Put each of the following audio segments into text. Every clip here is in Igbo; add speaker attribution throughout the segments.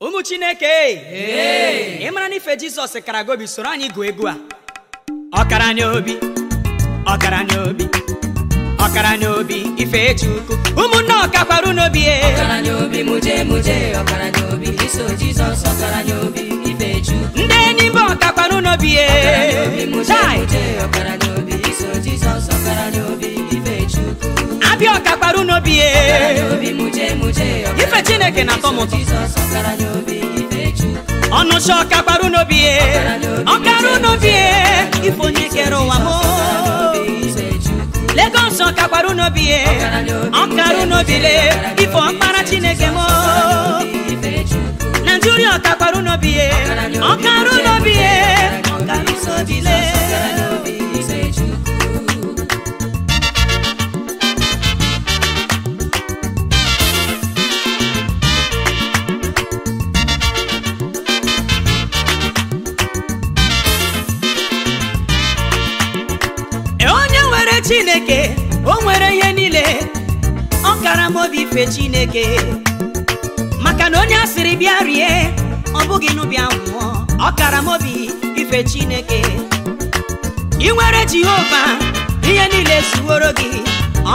Speaker 1: ụmụ chineke ị mara na ife jizọs kara gobi soro anyị gụọ egwu a ọkara obi ọkaranya obi ọkara obi ife chukwu ụmụnne ọkakwarụ n'obi e. n'obi muje muje n'obi iso ọkara ife ndị enyi mba ọkakwarụ n'obi e. ọkara n'obi muje muje ọkara iso jizọs ife chukwu tapioka kpara n'obi ye, ife chineke na-atọ m ụtọ ọnụcha ọka kpara n'obi ya ọkara n'obi ye, ife onye kere ụwa m Lagos ọka kpara n'obi ya ọkara n'obi le ife ọkpara chineke m Nigeria ọka kpara n'obi ya ọkara n'obi ya ọkara n'obi le ife chineke maka na onye asịrị bịa rie ọ bụghị n'ụbịa nwụọ ọkara m obi ife chineke ị nwere jehova ihe niile zuworo gị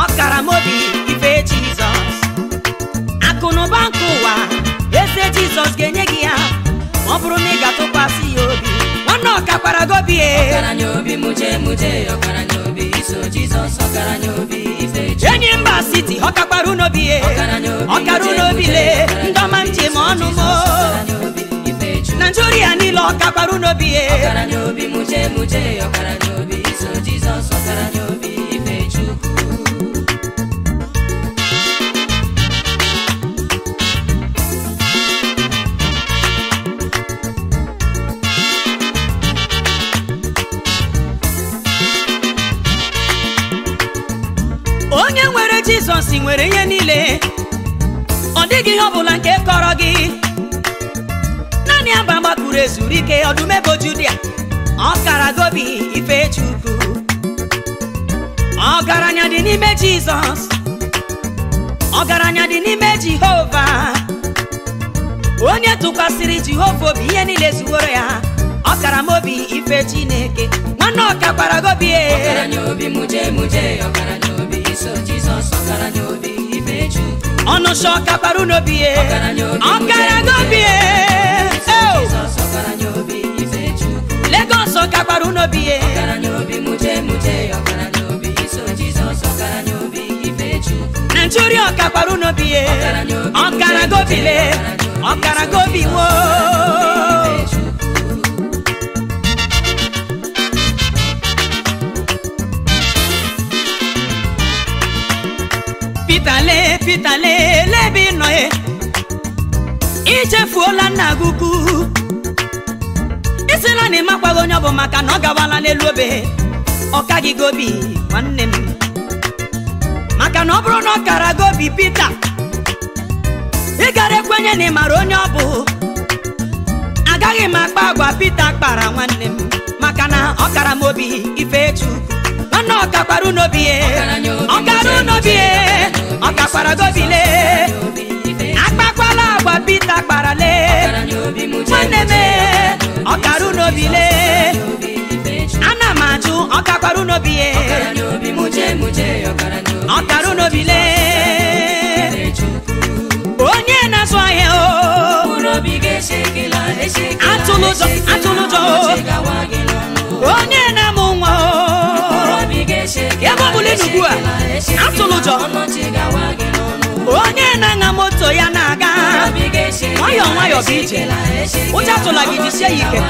Speaker 1: ọkara m obi ife jizọs akụ na ụba nke ụwa eze jizọs ga-enye gị ya ọ bụrụ na ị ga-atụkwasị ya obi nwanne ọkakwara gobie. Ọkara ọkaranya obi muje muje ọkaranya obi iso jizọs ọkaranya obi enyi mba siti ọ kakwara unobi ye ọkara unobi le ndọma nje ma ọnụ mo naijiria niile ọ kakwara unobi ye ọkara n'obi muje muje ọkara n'obi iso jizọs ọkara n'obi jizọs nwere ihe niile ọ dịghị ihe ọbụla nke kọrọ gị naanị aba gbapụrụ ezuru ike ọdụmebo judia ọkara gobi ife chukwu ọgaranya dị n'ime jizọs ọgaranya dị n'ime jehova onye tụkwasịrị jehova obi ihe niile zuworo ya ọkara m obi ife chineke nwanne ọkakwara gobi e. obi muje ọnụ sọ ọkakpara n'obi ya ọkara n'obi ya e. Lagos ọkakpara n'obi ya Nigeria ọkakpara n'obi ya ọkara gobi le ọkara gobi woo pitale pitale ebe ị nọ ye ichefuola nna gị ukwu isila na ịmakwaghị onye ọ bụ maka na ọ gawala n'elu obe ọka gị gobi nwanne m maka na ọ bụrụ na ọ kara gobi Pita ị gara ekwenye na ị mara onye ọ bụ agaghị m akpa agwa Pita kpara nwanne m maka na ọ kara m obi ifechukwu nwanne ọkakwara unobi ọkara unobi ọkakwara gobile akpakwala agwa pita kparale nwanne m ọkara unobile ana m ajụ ọkakwara unobi ọkara unobile atụlụjọ onye na-anya moto ya na-aga nwayọ nwayọ bụ ije ụjọ atụla gị jisie ya ike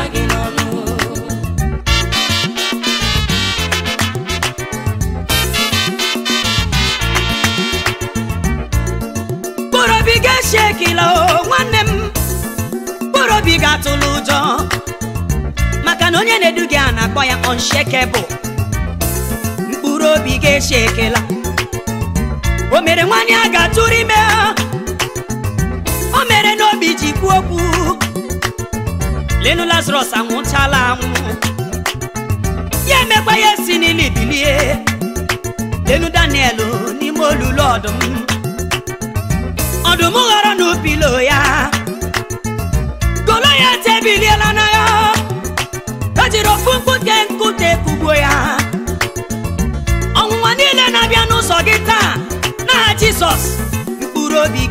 Speaker 1: mkpụrụobi ga-esi ekele nwanne m mkpụrụobi ga-atụlụ ụjọ maka na onye na-edu gị a na-akpọ ya unshakable mkpụrụ obi ga-esi ekele o mere nwaanyị a ga-atụrụ ime o mere n'obi ji kwuo okwu lenu lazarus anwụchala anwụ ya emekwa ya si n'ili bilie lenu daniel n'ime olulu ọdụm ọdụm ghọrọ n'upilo ya goloyat ya n'agha o jiri ofu mkpute nkute kugbuo ya ọnwụnwa niile na-abịa n'ụzọ gị taa nagha Jizọs mkpụrụ obi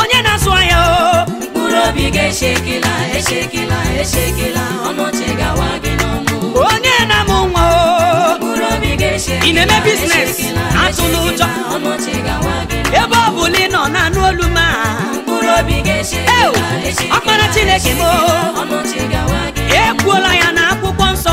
Speaker 1: onye na asụ ahịa o mkpụrụ obi gị echekela echekela gawa gị n'ọnụ onye na-amụ nwa o mkpụrụ obi ga echekela ị na-eme biznes atụla ụjọ ebe ọ bụla ị nọ na-anụ olu ma mkpụrụ obi gị echekela echekela ọkpara Chineke m o ekwuola ya na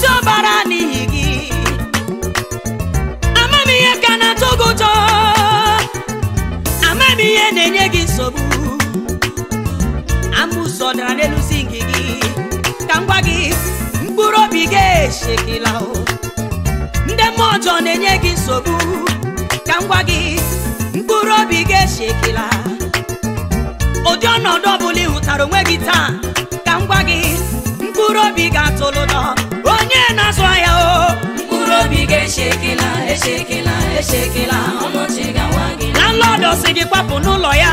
Speaker 1: si ọbara n'ihi gị ihe ka na-atọ gị ụtọ ihe na-enye gị nsogbu amụsọ na n'elu nkị gị ka ngwa gị mkpụrụ obi gị eshekila ndị mmụọ ọjọọ na-enye gị nsogbu ka ngwa gị mkpụrụ obi gị eshekila ụdị ọnọdụ ọbụla ị hụtara onwe gị taa ka m gị mkpụrụ obi ga-atụlụ onye na-azụ ahịa o mkpụrụ obi gị echekela echekela echekela ọnọchi gawa gị landlord si gị kwapụ n'ụlọ ya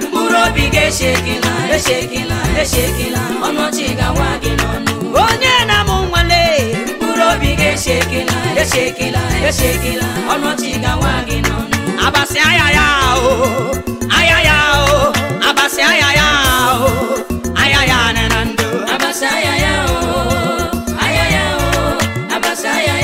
Speaker 1: mkpụrụ obi gị echekela echekela echekela ọnọchi gawa gị n'ọnụ onye na-amụ nwale mkpụrụ obi gị echekela echekela echekela ọnọchi gawa gị n'ọnụ abasị ahịa ya o ahịa ya o abasị ahịa ya o ahịa ya na ndụ abasị ahịa ya o ay, ay.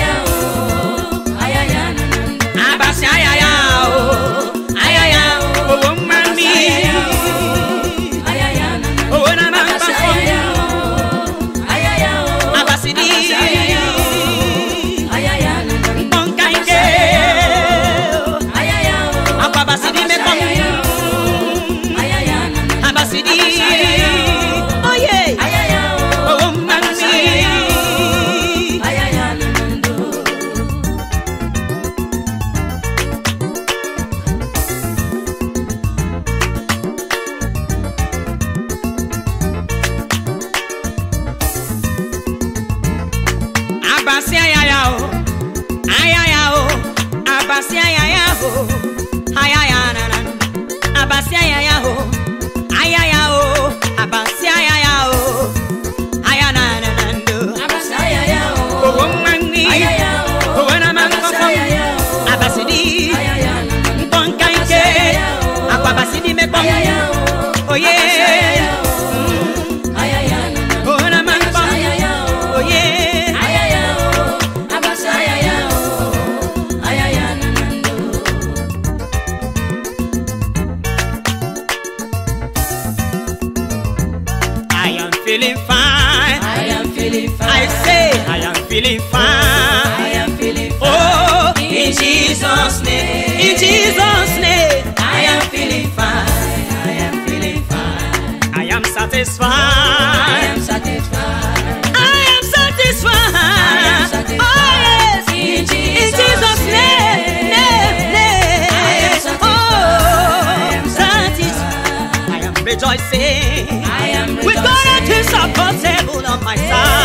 Speaker 1: satisfied. I am satisfied. I am satisfied. Oh yes, in Jesus', name, name, Oh, I am oh. satisfied. I am rejoicing. I am rejoicing. With God, on my side.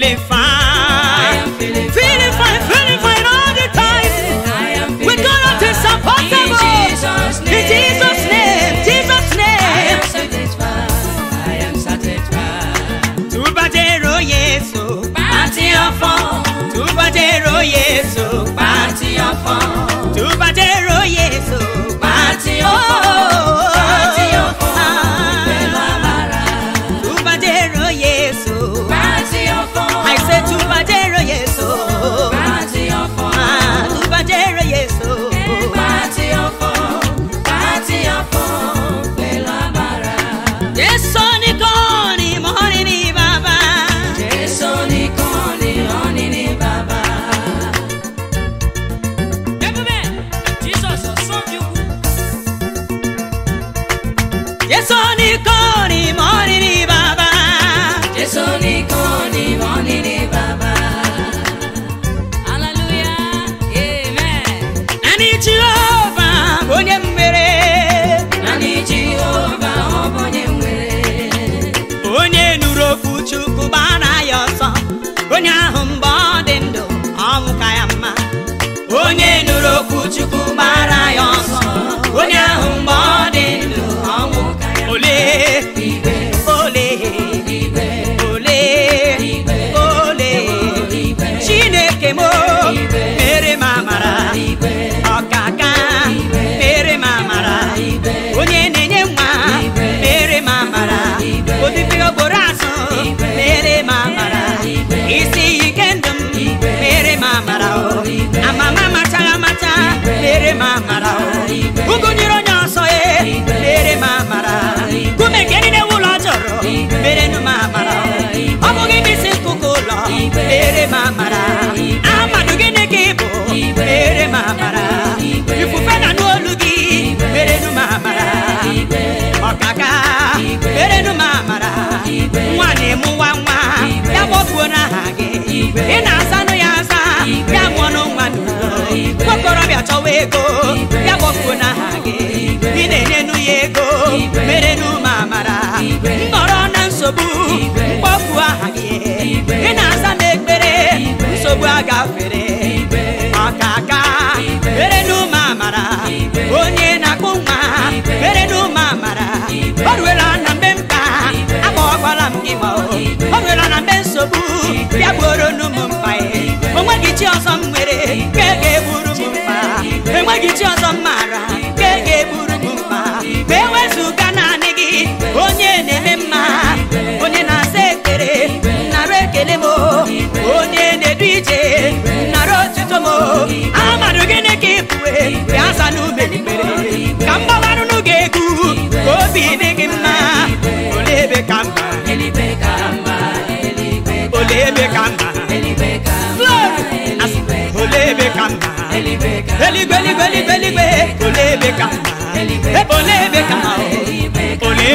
Speaker 1: feeling fine. Feeling, feeling fine, feeling fine all the time. We gonna support some possible. In Jesus' name, Jesus' name. I am satisfied. I am satisfied. Tubadero yeso, party of fun. Tubadero yeso, party of fun. na emu nwa nwa ya kpọpuo n'aha gị ị na-asanụ ya asa ya mụọ n'ọnwa nwokorobịa chọwa ego ya kpọpuo n'aha gị ị na-enyenu ya ego merenụ ma amara nọrọ na nsogbu mkpọpuo aha gị ị na-asa n'ekpere nsogbu agafe ọzọ m nwere nke ga-egburu m mma enweghị chi ọzọ mma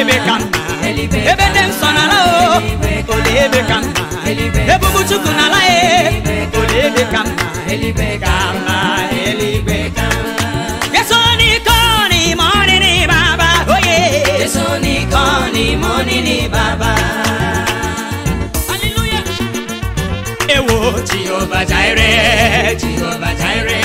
Speaker 1: ebe ka ebe nsọ n'ala o ole ebe ka nna ebubu chukwu n'ala ya e. ole ebe ka nna yeso n'iko n'ime ọnịnị baba n'ime ewo Jehova Jireh Jehova Jireh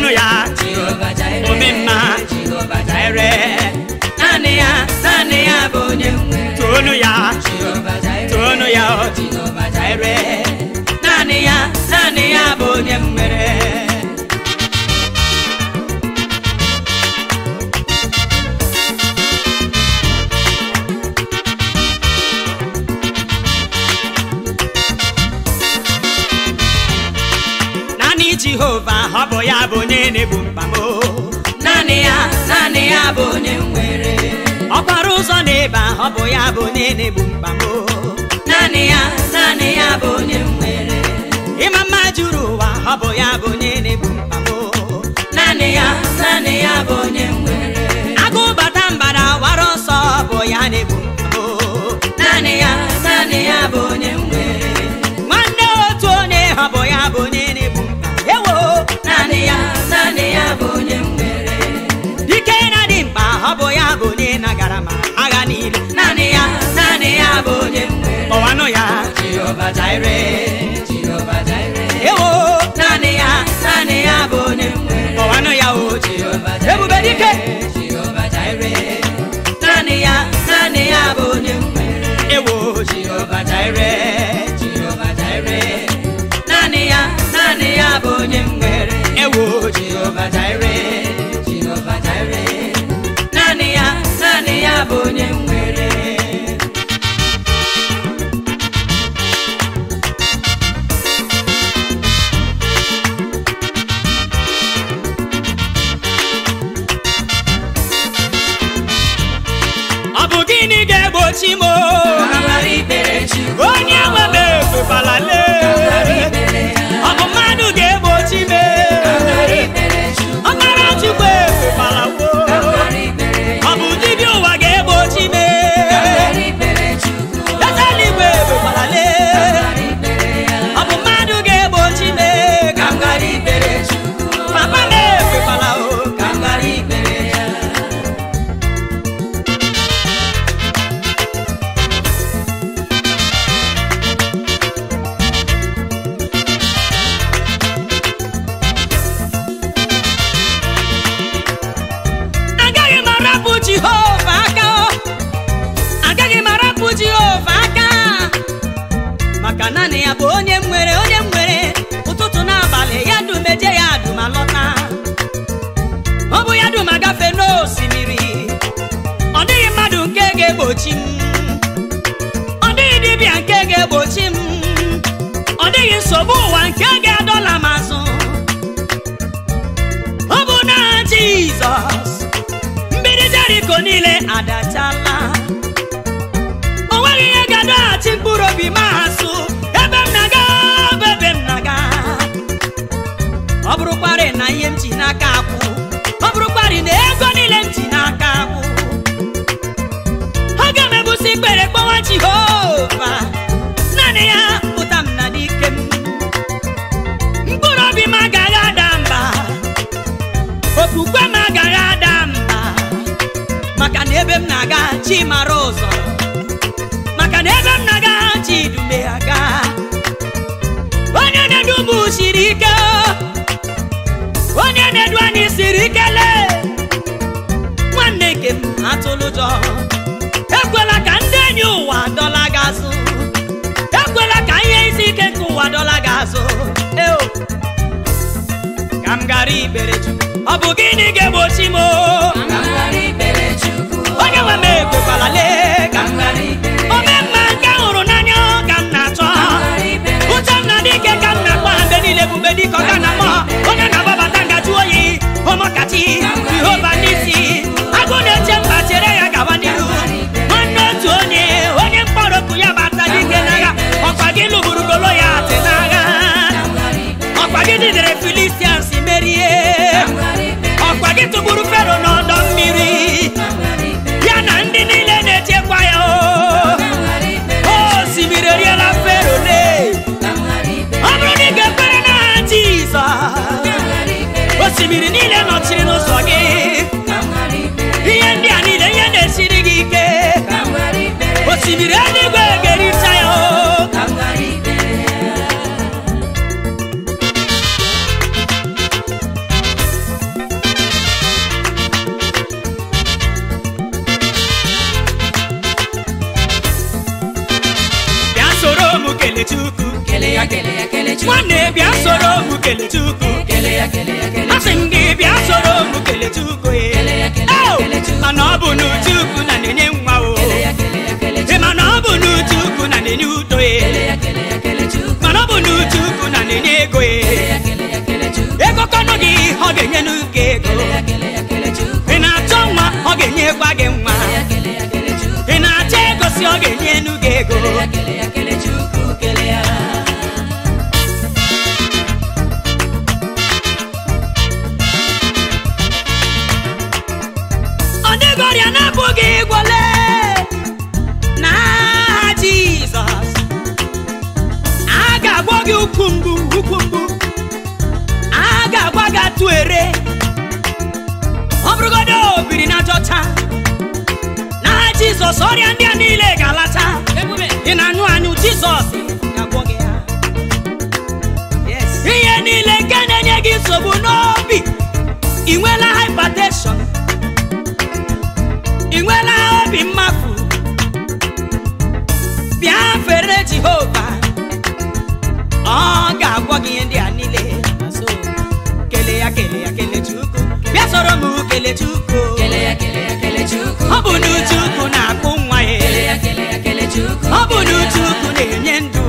Speaker 1: ya omi ere naanị ya naanị ya bụ onye nwere toonu ya ya ere naanị ya naanị ya bụ onye nwere ya bụ ya bụ onye nwere ọkwara ụzọ na ịba ọ bụ ya bụ onye na-egbu mkpamo naanị ya naanị ya bụ onye nwere ịma mma juru ụwa ọ bụ ya bụ onye na-egbu mkpamo naanị ya naanị ya bụ onye nwere Jehovah Jireh Jehovah Jireh ewo ya naanị ya bụ onye nwere kọwanụ ewo Jehovah Jireh ya bụ onye nwere onye nwere ụtụtụ n'abalị ya dumeje ya dum alọta ọ bụ ya dum agafe n'osimiri ọ dịghị mmadụ nke ga-egbochi m ọ dịghị dibịa nke ga-egbochi m ọ dịghị nsogbu ụwa nke ga-adọla m azụ ọ bụ na Jizọs mmiri Jeriko niile adachala o nweghị ihe ga-adọghachi mkpụrụ obi ma aka akwụ ọ bụrụkwarị na ego n'ụjọ ekwela ka ndị enyi ụwa dọla gị azụ ekwela ka ihe isi ike nke ụwa dọla ga azụ ka m gara ikpere chukwu ọ bụ gịnị ga-egbochi m onye nwe m ekwekwala ka m gara ome mma nke hụrụ n'anya ka m na-achọ m niile ebube na oyi jidere Filisians merie ọkwa gị tụgburu Fero n'ọdọ mmiri ya na ndị niile na-echekwa ya o osimiri eriela Fero le ọ bụrụ na ị ga-ekwere n'aha osimiri niile nọchiri n'ụzọ gị ihe ndị a niile ihe na-esiri gị ike osimiri o biri n'ajọ taa n'aha jizọs ọrịa ndị a niile ga-alata ị na-anyụ anyụ jizọs ihe niile nke na-enye gị nsogbu n'obi ị nwela hypertension ị nwela obi mmafu bịa fere jehova ọ ga-agwọ gị ihe ndị a soro m Kelechukwu ọ bụ n'uchukwu ukwu na-akpụ nwa ya ọ bụ n'uchukwu na-enye ndụ